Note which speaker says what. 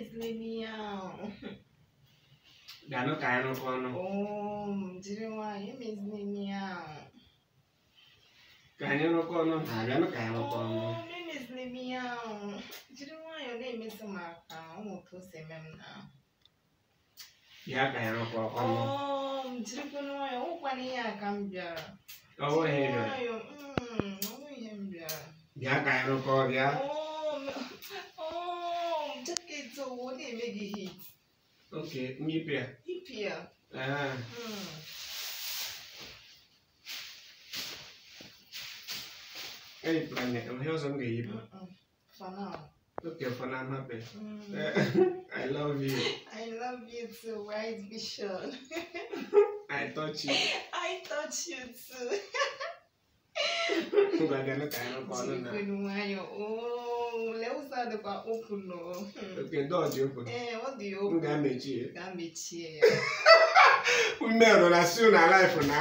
Speaker 1: Please leave me out. Gano kaya ng kono. Oh, jiri wa, you miss me ka Kaya ọnụ! Jiri Maka. Oh, oh, mm, I'm Ya kaya bihi. Okay, Me Nyipia. Ah. Hmm. Any plan yet? I'm here some game. Mm-mm. For now. Okay, for now I'm hmm. happy. I love you. I love you too, White Bishop. I touch you. I touch you too. Gbàgbé ní kàánú kọ́ ọ́ lónà. Jíìpé ni aka dịkwa open nọ ee ọ dị M ga-emechie ya ume rụra si na life na